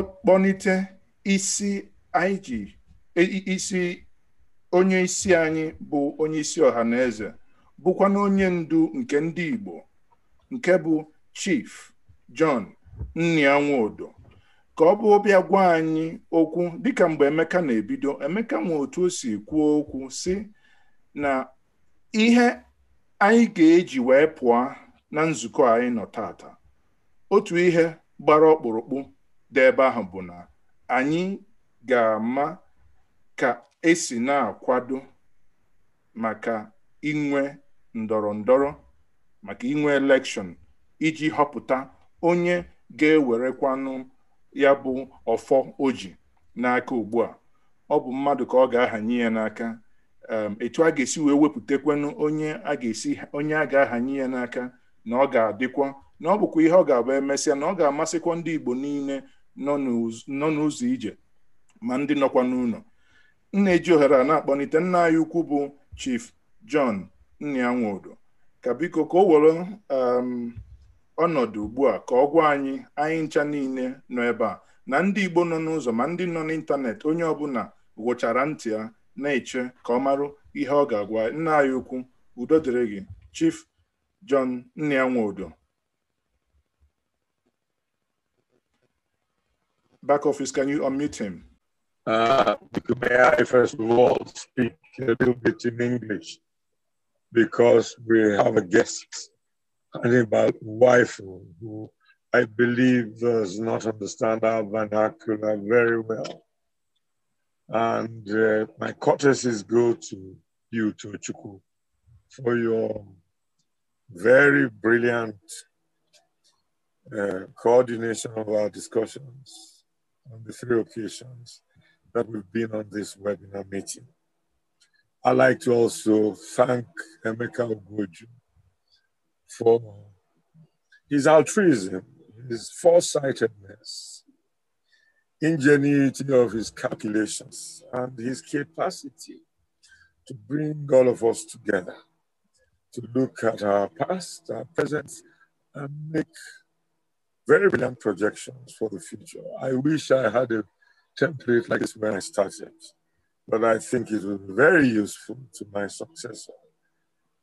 kpọnite isi anyị e, isi onye isi anyị bụ onye isi ọha na eze bụkwa na onye ndu nke ndị Igbo nke bụ Chief John Nnianwudu ka ọ bụ bịa gwa anyị okwu dịka mgbe Emeka na-ebido Emeka nwe otu o si kwuo okwu si na ihe anyị ga-eji wee pụọ na nzukọ anyị nọ tata otu ihe gbara ọkpụrụkpụ dị ebe ahụ bụ na anyị ga-ama ka esi na-akwado maka inwe ndọrọ ndọrọ maka inwe elekshọn iji họpụta onye ga-ewerekwanụ ya bụ ọfọ oji n'aka ugbu a ọ bụ mmadụ ka ọ ga-ahanye ya n'aka etu a ga-esi wee wepụtakwanụ onye a ga-esi onye a ga-ahanye ya n'aka na ọ ga-adịkwa na ọ bụkwa ihe ọ ga-abụ emesịa na ọ ga-amasịkwa ndị Igbo niile nọ n'ụzọ ije ma ndị nọkwa n'ụlọ nna eji ohere a na-akpọlite nna anyị ukwu bụ Chief John Nnianwudu ka biko ka o were um, ọnọdụ ugbu a ka ọ gwa anyị anyị ncha niile nọ ebe a na ndị Igbo nọ n'ụzọ ma ndị nọ n'ịntanetị onye ọbụla gwụchara ntị ya na-eche ka ọ marụ ihe ọ ga-agwa nna anyị ukwu udo dịrị gị Chief John Nnianwudu back office, can you unmute him? Uh, may I first of all speak a little bit in English because we have a guest, Hannibal wife, who I believe does not understand our vernacular very well. And uh, my courtesies go to you, Tochuku, for your very brilliant uh, coordination of our discussions on the three occasions that we've been on this webinar meeting. I'd like to also thank Emeka Ogoju for his altruism, his foresightedness, ingenuity of his calculations, and his capacity to bring all of us together to look at our past, our present, and make very brilliant projections for the future. I wish I had a template like this when I started, but I think it will be very useful to my successor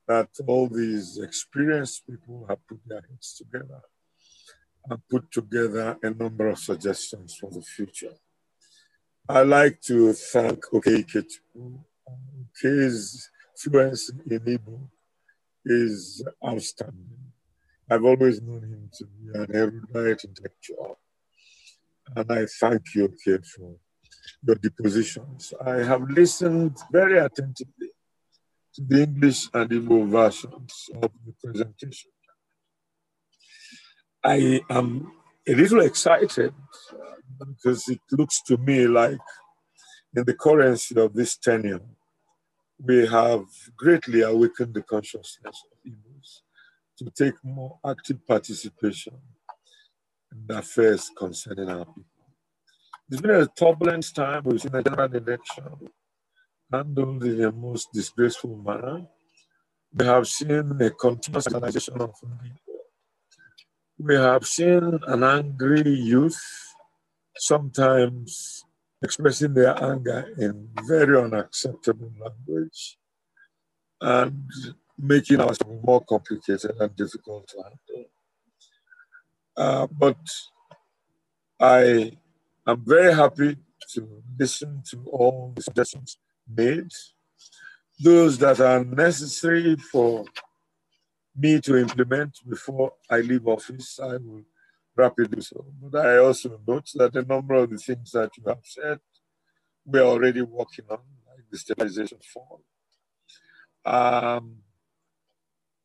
that all these experienced people have put their heads together and put together a number of suggestions for the future. I'd like to thank Okeikichu. His fluency in Igbo is outstanding. I've always known him to be an erudite intellectual. And I thank you, Kate, for your depositions. I have listened very attentively to the English and Igbo versions of the presentation. I am a little excited because it looks to me like in the currency of this tenure, we have greatly awakened the consciousness of Igbo to take more active participation in affairs concerning our people. It's been a turbulent time. We've seen the general election handled in the most disgraceful manner. We have seen a continuous organization of We have seen an angry youth sometimes expressing their anger in very unacceptable language. And making our more complicated and difficult to handle. Uh, but I am very happy to listen to all the suggestions made, those that are necessary for me to implement before I leave office, I will rapidly so. But I also note that a number of the things that you have said, we are already working on, like the stabilization fund. Um,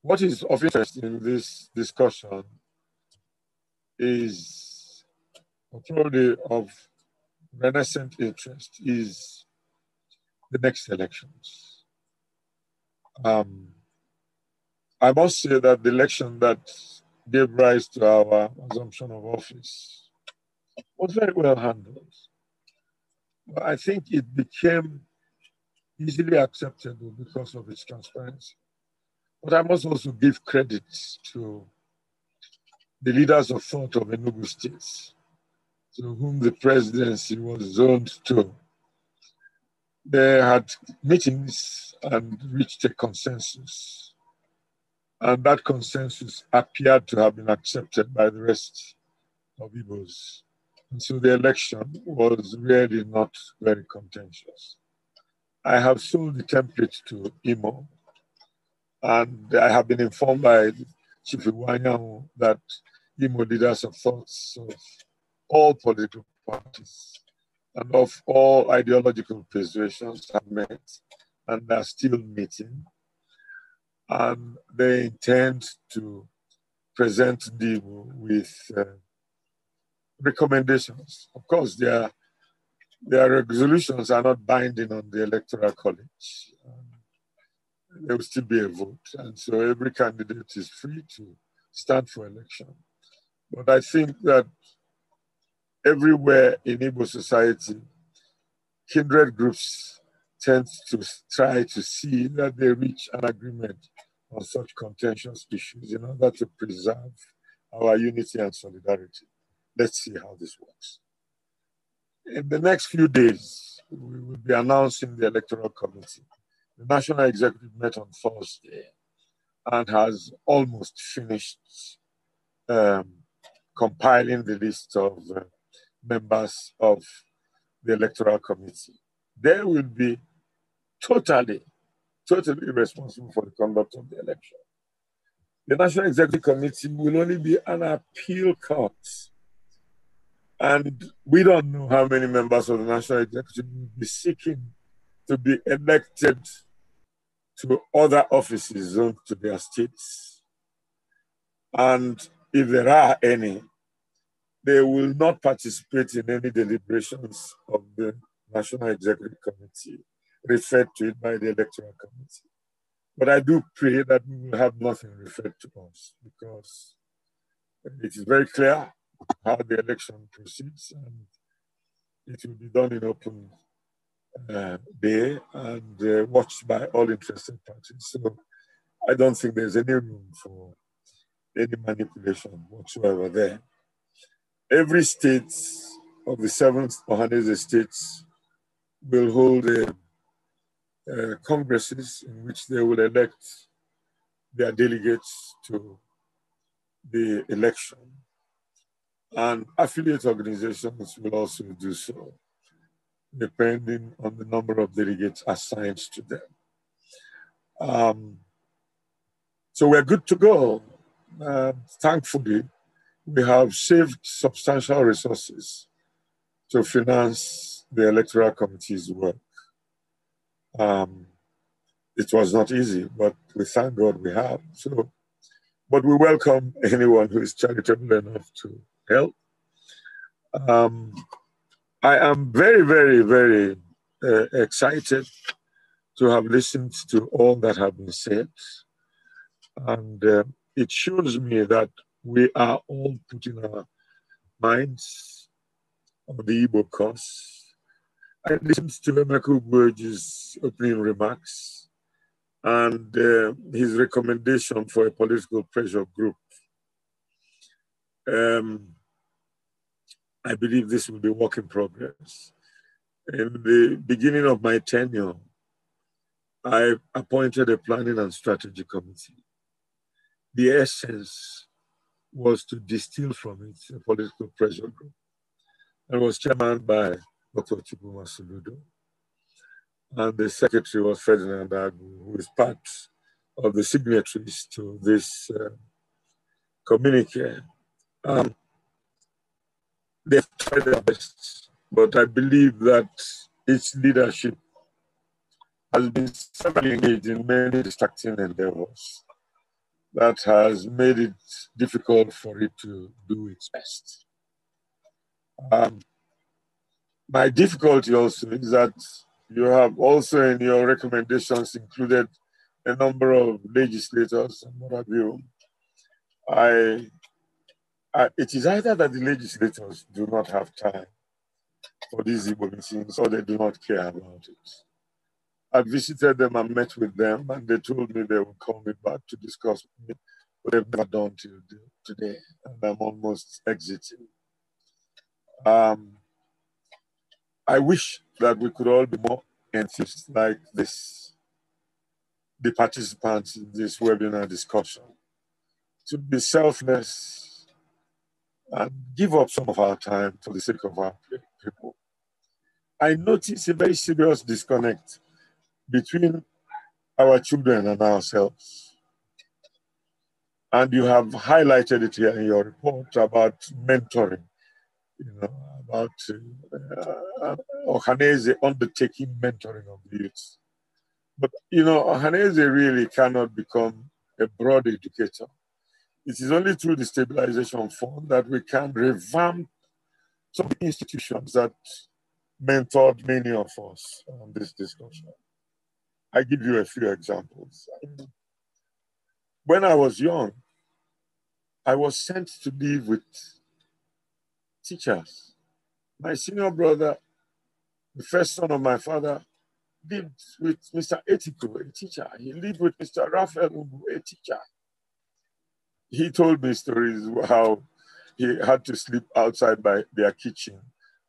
what is of interest in this discussion is probably of renaissance interest is the next elections. Um, I must say that the election that gave rise to our assumption of office was very well handled. But I think it became easily acceptable because of its transparency. But I must also give credit to the leaders of thought of Enugu State, to whom the presidency was zoned to. They had meetings and reached a consensus. And that consensus appeared to have been accepted by the rest of Igbos. And so the election was really not very contentious. I have sold the template to Imo and I have been informed by Chief Iwanyan that Imo leaders have thoughts of all political parties and of all ideological persuasions have met and are still meeting. And they intend to present them with uh, recommendations. Of course, their, their resolutions are not binding on the Electoral College there will still be a vote. And so every candidate is free to stand for election. But I think that everywhere in Igbo society, kindred groups tend to try to see that they reach an agreement on such contentious issues in order to preserve our unity and solidarity. Let's see how this works. In the next few days, we will be announcing the electoral committee the National Executive met on Thursday and has almost finished um, compiling the list of uh, members of the Electoral Committee. They will be totally, totally responsible for the conduct of the election. The National Executive Committee will only be an appeal court. And we don't know how many members of the National Executive will be seeking to be elected to other offices zoned uh, to their states. And if there are any, they will not participate in any deliberations of the National Executive Committee, referred to it by the Electoral Committee. But I do pray that we will have nothing referred to us because it is very clear how the election proceeds and it will be done in open uh, day and uh, watched by all interested parties. So I don't think there's any room for any manipulation whatsoever there. Every state of the seven Mohanese states will hold a, uh, uh, congresses in which they will elect their delegates to the election. And affiliate organizations will also do so depending on the number of delegates assigned to them. Um, so we're good to go. Uh, thankfully, we have saved substantial resources to finance the electoral committee's work. Um, it was not easy, but we thank God we have. So, but we welcome anyone who is charitable enough to help. Um, I am very, very, very uh, excited to have listened to all that have been said. And uh, it shows me that we are all putting our minds on the Igbo cause. I listened to Emeka Burge's opening remarks and uh, his recommendation for a political pressure group. Um, I believe this will be work in progress. In the beginning of my tenure, I appointed a planning and strategy committee. The essence was to distill from it a political pressure group. I was chairman by Dr. Chibuma Soludo. And the secretary was Ferdinand Agu, who is part of the signatories to this uh, communique. Um, they try their best, but I believe that its leadership has been severely engaged in many distracting endeavors that has made it difficult for it to do its best. Um, my difficulty also is that you have also in your recommendations included a number of legislators and what have you. I uh, it is either that the legislators do not have time for these Igbo meetings or they do not care about it. I visited them and met with them, and they told me they would call me back to discuss with me, but they've never done till today, and I'm almost exiting. Um, I wish that we could all be more enthusiastic like this, the participants in this webinar discussion, to be selfless and give up some of our time for the sake of our people. I notice a very serious disconnect between our children and ourselves. And you have highlighted it here in your report about mentoring, you know, about uh, uh Ohaneze undertaking mentoring of youths. youth. But, you know, Ohaneze really cannot become a broad educator it is only through the stabilization fund that we can revamp some institutions that mentored many of us on this discussion. I give you a few examples. When I was young, I was sent to live with teachers. My senior brother, the first son of my father, lived with Mr. Etiko, a teacher. He lived with Mr. Raphael Ubu, a teacher he told me stories how he had to sleep outside by their kitchen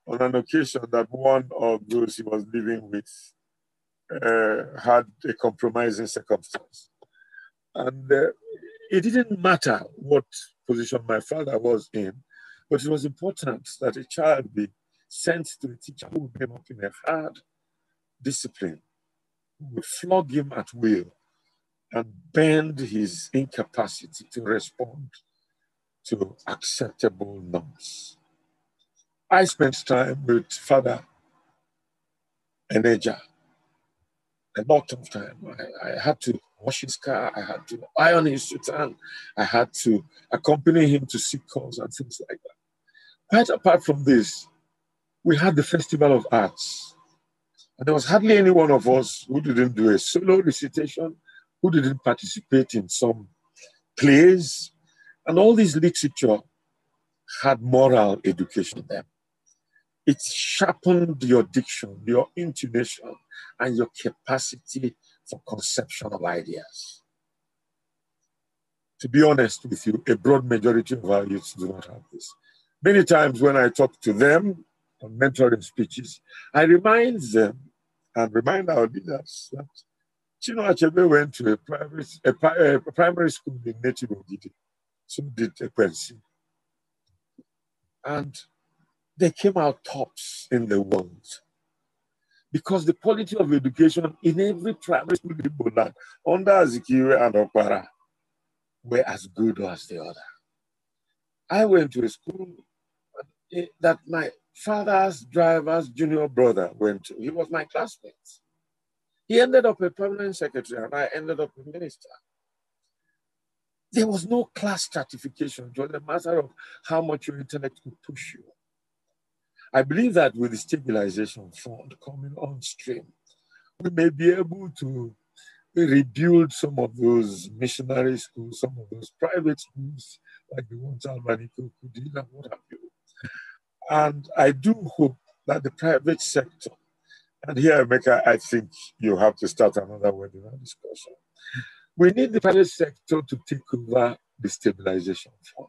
on an occasion that one of those he was living with uh, had a compromising circumstance. And uh, it didn't matter what position my father was in, but it was important that a child be sent to a teacher who came up in a hard discipline, would flog him at will, and bend his incapacity to respond to acceptable norms. I spent time with Father Eneja a lot of time. I, I, had to wash his car, I had to iron his sutan, I had to accompany him to sick calls and things like that. Quite apart from this, we had the Festival of Arts. And there was hardly any one of us who didn't do a solo recitation who didn't participate in some plays. And all this literature had moral education in them. It sharpened your diction, your intuition, and your capacity for conception of ideas. To be honest with you, a broad majority of our youths do not have this. Many times when I talk to them on mentoring speeches, I remind them and remind our leaders that Chino went to a private a, a primary school in Native Ogidi. So did a Ekwensi. And they came out tops in the world. Because the quality of education in every primary school in Boland, under Azikiwe and Okwara, were as good as the other. I went to a school eh, that my father's driver's junior brother went to. He was my classmate. He ended up a permanent secretary and I ended up a minister. There was no class stratification. It was a matter of how much your intellect could push you. I believe that with the stabilization fund coming on stream, we may be able to rebuild some of those missionary schools, some of those private schools, like the ones Albany Kukudina, what have you. And I do hope that the private sector and here, Mecca, I think you have to start another webinar discussion. We need the private sector to take over the stabilization fund.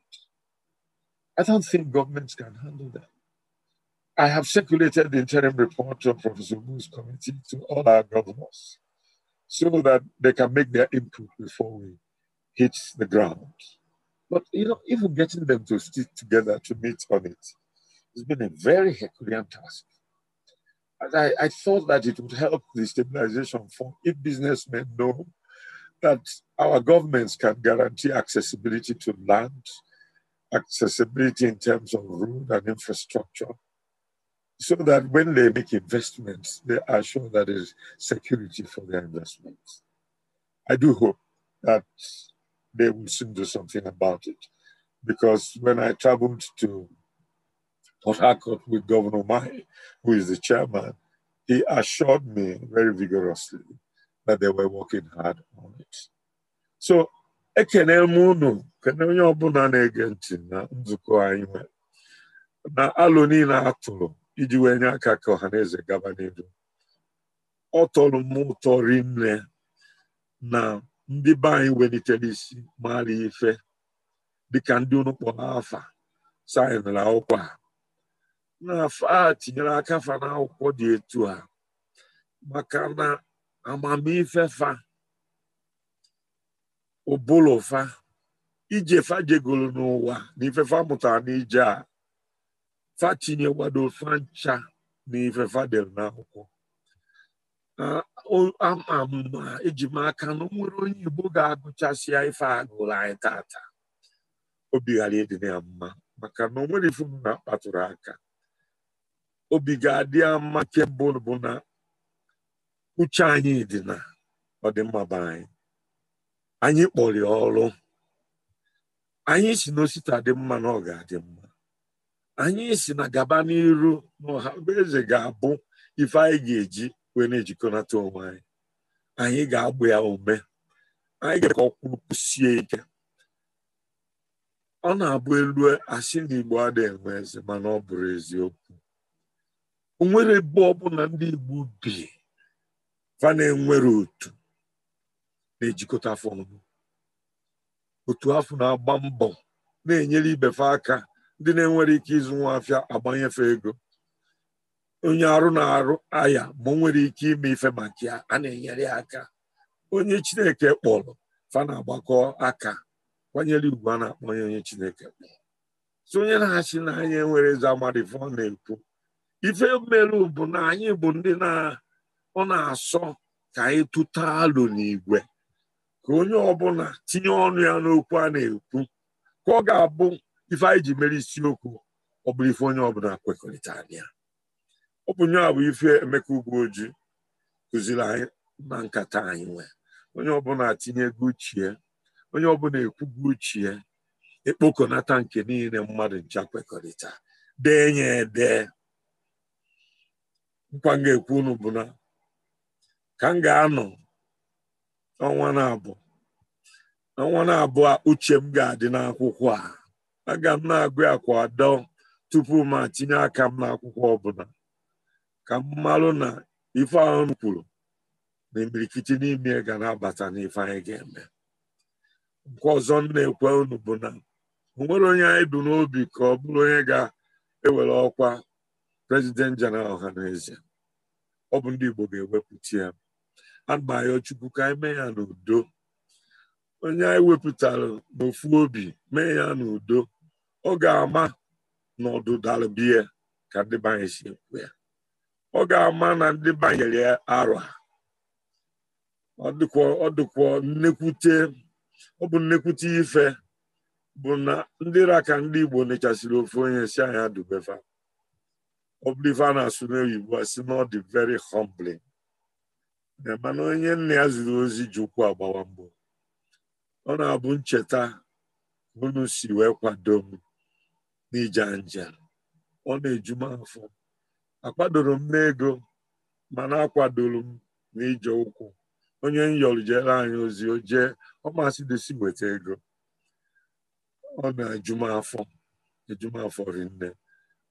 I don't think governments can handle that. I have circulated the interim report of Professor Wu's committee to all our governors so that they can make their input before we hit the ground. But you know, even getting them to stick together to meet on it has been a very Herculean task. I, I thought that it would help the stabilization fund if businessmen know that our governments can guarantee accessibility to land, accessibility in terms of road and infrastructure, so that when they make investments, they are sure that there is security for their investments. I do hope that they will soon do something about it, because when I traveled to Port Harcourt with Governor Mai, who is the chairman, he assured me very vigorously that they were working hard on it. So ekene m unu kene onye ọbụla na-ege ntị na nzukọ anyị nwere na alụ niile a tụrụ iji wee nye aka ka ọha na eze gaba n'ihu ọ tọrọ m ụtọ rinne na ndị be anyị welitere isi maara ife dịka ndị unu kpọrọ afa sayịnara akwụkwọ na a tinyere aka fa n'akwụkwọ dị etu a maka na amamife fa ụbụlụ fa ije fa jegoro n'ụwa na ifefa mụtara n'ije a fa tinyekwado fa ncha na ifefa dere n'akwụkwọ ama ma eji m aka na nwere onye Igbo ga-agụchasịa ife agụrụ anyị taata obi ghara ịdị ya mma maka na o nwere ife m na-akpatụrụ aka obi ga-adị ama kebụl bụ na uche anyị dị na ọdịmma be anyị anyị kpọrọ ọrụ anyị si n'osita dị mma na ọ ga-adị mma anyị si na gaba n'iru na ọha eze ga-abụ ife anyị ga-eji wee na-ejikọnata onwe anyị anyị ga-agba ya ume anyị ga ka sie ike ọ na-abụ elu asị na Igbo adịghị enwe eze mana ọ bụrụ eziokwu onwere ebe ọbụla ndị Igbo bi fa na-enwere otu na-ejikọta afọ otu afọ na-agba mbọ na-enyere ibefe aka ndị na-enwere ike ịzụ nwa afịa agbanyefe ego onye arụ na-arụ aya ma nwere ike ime ife maka a na-enyere aka onye Chineke kpọrọ fa na-agbakọ aka kwanyere ugwu a na-akpọ onye Chineke kpọrọ onye na-achị n'anya enwere nwere amadị na-ekwu ife mmerụ bụ na anyị bụ ndị na ọ na-asọ ka anyị tụta alụ n'igwe ka onye ọbụla tinye ọnụ ya n'okwu a na-ekwu ka ọ ga-abụ ife anyị ji mere isiokwu ọ bụrụ ife onye ọbụla kwekọrịta ya ọ bụ nye bụ ife Emeka Ugwuoji kụziri anyị na nkata anyị nwee onye ọbụla tinye ego uchie onye ọbụla ekwugo uchie ekpokọnata nke niile mmadụ ncha kwekọrịta dee ede nkwa m ga-ekwu unu bụ na ka m ga-anọ ọnwa na-abụ ọnwa na-abụ a uche m ga-adị n'akwụkwọ a aga m na-agụ akwa adọ tupu m tinye aka m n'akwụkwọ ọbụla ka m malụ na ife ahụ kwuru na imirikiti n'ime ga na-abata n'ife anyị ga-eme nke ọzọ m na-ekwe unu bụ na onwere onye anyị bụ n'obi ka ọ bụrụ onye ga-ewere ọkwa prezident jeneral n'ezie ọ bụ ndị Igbo ga-ewepụta ya agbayọ Chukwu ka anyị mee ya n'udo onye anyị wepụtara n'ofu obi mee ya n'udo ọ ga-ama na ọdụdara biya ka ndị banye si ekwu ya ọ ga-ama na ndị banyere ya arọ ọ dịkwa nnekwute ọ bụ nnekwute ife bụ na ndị raka ndị Igbo nechasịrị ofu onye si anyị adụbefa ọ bụrụ ife a na-asụ n'oyibo a sị na ọ dị very humbling mana onye nne ya ziri ozi ji ụkwụ agbawa mbụ ọ na-abụ ncheta unu si wee kwado m nja njem ọ na-eju afọ akwadoro m n'ego mana akwadoro m n'ije ụkwụ onye nyọrụ jere anyị ozi o jee ọ masị desi nweta ego ọ na afọ m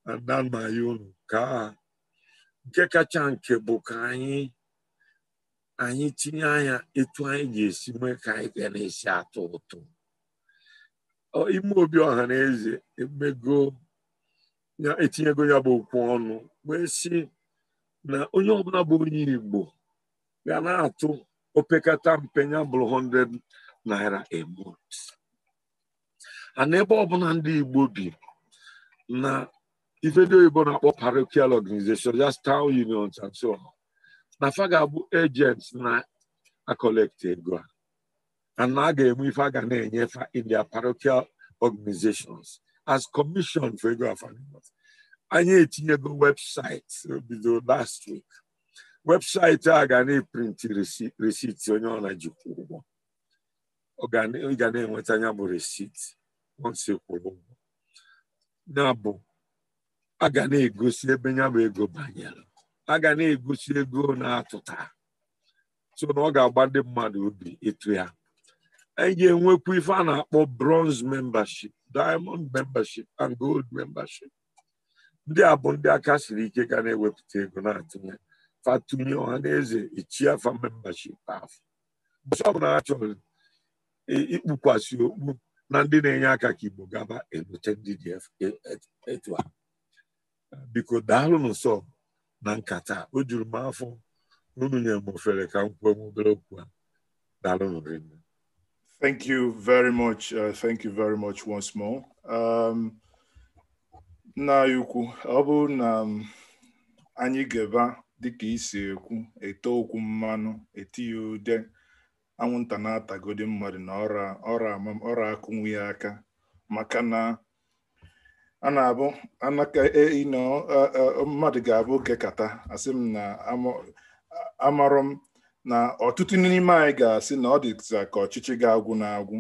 ada nna ya unu ka nke kacha nke bụ ka anyị anyị tinye anya etu anyị ga-esi mee ka anyị ga na-esi atọ ụtọ ime obi ọha na eze emego etinyego ya bụ okwu ọnụ wee sị na onye ọbụla bụ onye Igbo ga na-atụ opekata mpe ya bụrụ 100 naira a month ebe ọbụla ndị Igbo bi na ife ndị oyibo na-akpọ parochial organization just town unions and so on na fa ga-abụ agents na-akọlekt ego a na a ga-enwe ife a ga na-enyefa in their parochial organizations as commission for ego afanimot anyị etinyego webụsaịtị bido last week webụsaịtị a ga na-eprinti receipt onye ọ na-ejikwa ụgwọ ị ga na-enweta anya bụ resiti once e kwụrụ ụgwọ na bụ a ga na-egosi ebe ya ego banyere a ga na-egosi ego na-atụta so na ọ ga-agba ndị mmadụ obi ịtụ ya anyị e ga-enwekwa ife a na-akpọ bronze membership diamond membership and gold membership ndị a bụ ndị aka siri ike ga na-ewepụta ego na-atụnye fatunye ọha na eze ichie afa membership afọ chọrọ ikpukwasị okpu na ndị na-enye aka ka igbo gaba ebute ndị dị e, e, etu a biko Daalụ Nsọ na nkata o juru m afọ n'unu nyere m ofere ka m kwuo m obere okwu a Daalụ rinne Thank you very much. Uh, thank you very much once more. Um, nna anyị ukwu ọ bụrụ na um, anyị ga-eba dịka isi ekwu ete okwu mmanụ etinye ude anwụnta na-atagodi mmadụ na ọra ọra akụnwu ya aka maka na a na-abụ ino e, e, mmadụ ga-abụ kekata asị m na amarọ m na ọtụtụ n'ime anyị ga-asị na ọ dịza ka ọchịchị ga-agwụ na-agwụ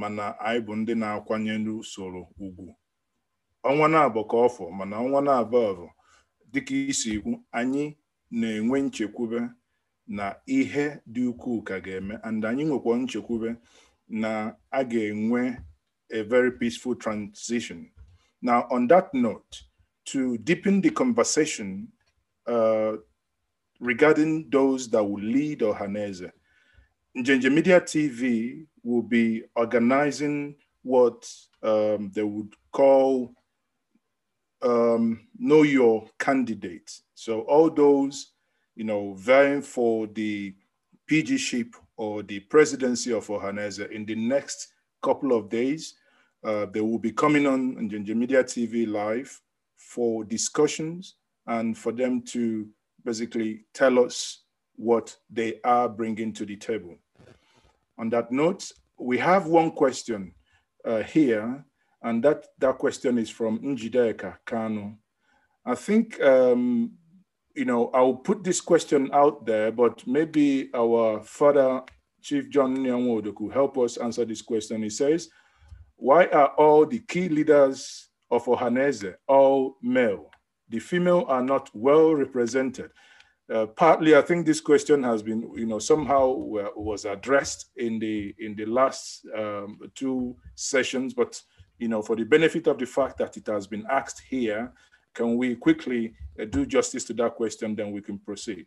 mana anyị bụ ndị na-akwanyere usoro ugwu ọnwa na-abụ ka ọfọ mana ọnwa na abọ bụ dịka isi ikwu anyị na-enwe nchekwube na ihe dị ukwuu ka ga-eme and anyị nwekwa nchekwube na a ga-enwe a very peaceful transition Now, on that note, to deepen the conversation uh, regarding those that will lead Ohaneze, Njenje Media TV will be organizing what um, they would call um, know your candidate. So all those, you know, vying for the PG ship or the presidency of Ohaneze in the next couple of days uh, they will be coming on, on Ginger Media TV live for discussions and for them to basically tell us what they are bringing to the table. On that note, we have one question uh, here, and that, that question is from Njideka Kano. I think, um, you know, I'll put this question out there, but maybe our father, Chief John Nyanwodo, could help us answer this question. He says, why are all the key leaders of Ohanese all male? The female are not well represented. Uh, partly, I think this question has been, you know, somehow uh, was addressed in the in the last um, two sessions. But you know, for the benefit of the fact that it has been asked here, can we quickly uh, do justice to that question? Then we can proceed.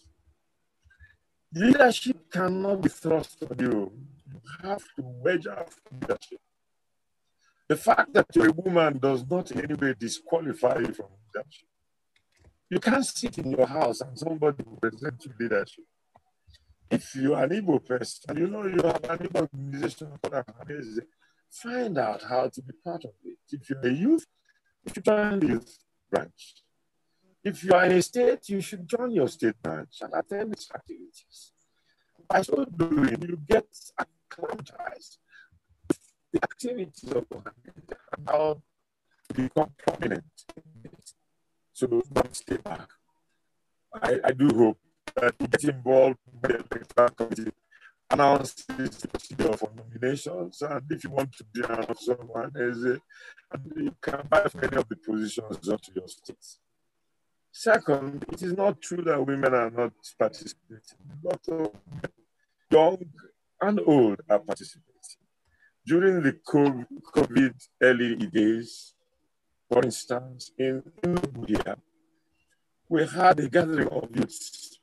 Leadership cannot be thrust on you. You have to wedge out leadership. The fact that you're a woman does not in any way disqualify you from leadership. You can't sit in your house and somebody will present you leadership. If you are an able person, you know you have an Igbo organization, find out how to be part of it. If you're a youth, if you join the youth branch, if you are in a state, you should join your state branch and attend its activities. By so doing, you get acclimatized the activities of Mohammed and how to become prominent. So don't stay back. I, I do hope that you get involved with the electoral committee announce the procedure for nominations, and if you want to be someone, as you can buy any of the positions up to your states. Second, it is not true that women are not participating. A lot of young and old are participating. During the COVID early days, for instance, in India, we had a gathering of youths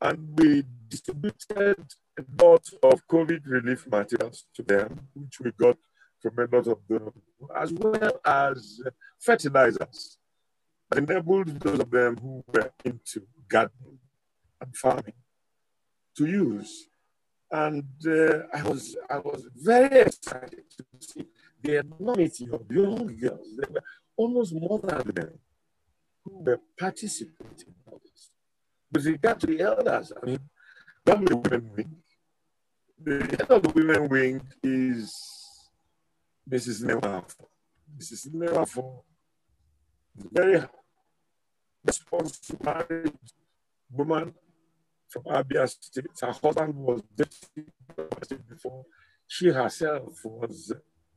and we distributed a lot of COVID relief materials to them, which we got from a lot of them, as well as fertilizers enabled those of them who were into gardening and farming to use. And uh, I, was, I was very excited to see the enormity of young girls. There were almost more than them who were participating in this. With regard to the elders, I mean, the women wing. The head of the women wing is Mrs. Newafo. Mrs. Newafo very responsive married woman from Abia State. Her husband was dating before. She herself was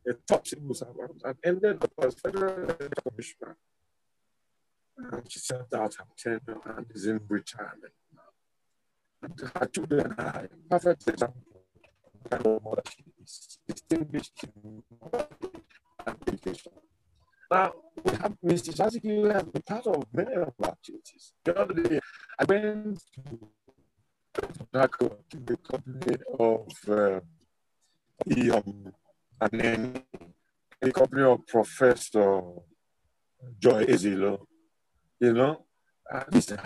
a top civil servant and ended up as federal commissioner. And she served out her tenure and is in retirement now. And her children are a perfect example of the kind of mother she is, distinguished in education. Now, we have, Mr. Jazzy has been part of many of our activities. The other day, I went to to the company of uh, the, um, and then the company of Professor Joy Ezilo, you know, he's this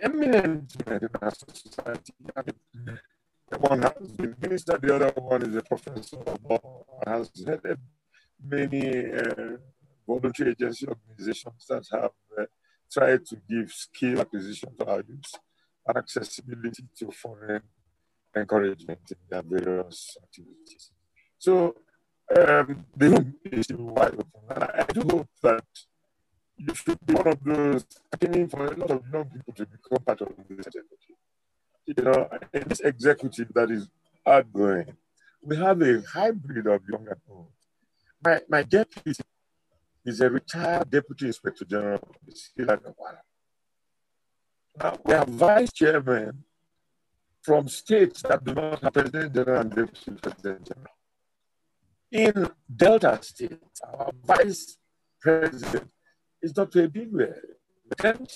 eminent in our society. The one has been minister, the other one is a professor, has headed many uh, voluntary agency organizations that have uh, tried to give skill acquisition to our youth and accessibility to foreign encouragement in their various activities. So um, the room is wide open. And I do hope that you should be one of those aiming for a lot of young people to become part of this executive. You know, in this executive that is outgoing, we have a hybrid of young and old. My, my deputy He's a retired Deputy Inspector General of the Now we have vice chairmen from states that do not have President General and Deputy President General. In Delta State, our vice president is Dr. Ebigwe, the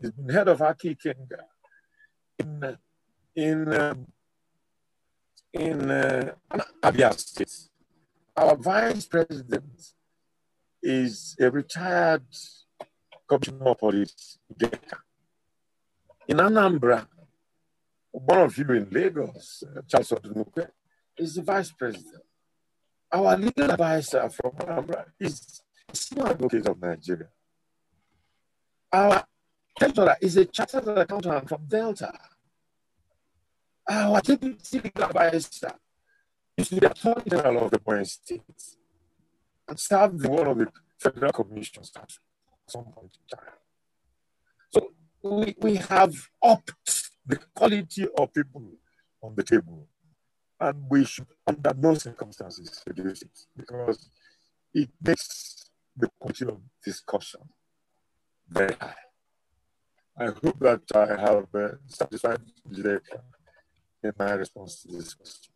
He's been head of Aki Kenga. In, in, um, in uh, Abia State, our vice president is a retired commissioner of police, Geka. In Anambra, one of you in Lagos, uh, Charles Odunuke, is the vice president. Our legal advisor from Anambra is a senior advocate of Nigeria. Our treasurer is a chartered accountant from Delta. Our deputy legal advisor is the attorney general of the Point States and served in one of the federal commissions at some point in time. So we, we have upped the quality of people on the table. And we should, under no circumstances, reduce it because it makes the quality of discussion very high. I hope that I have uh, satisfied in uh, my response to this question.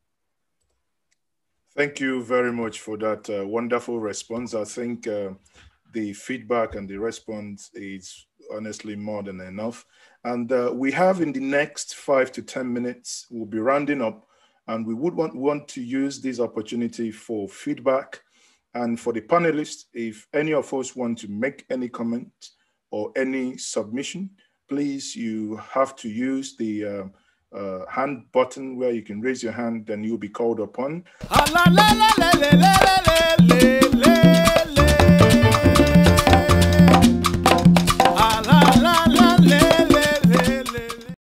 Thank you very much for that uh, wonderful response. I think uh, the feedback and the response is honestly more than enough. And uh, we have in the next five to 10 minutes, we'll be rounding up and we would want, want to use this opportunity for feedback and for the panelists, if any of us want to make any comment or any submission, please, you have to use the uh, uh, hand button where you can raise your hand, then you'll be called upon.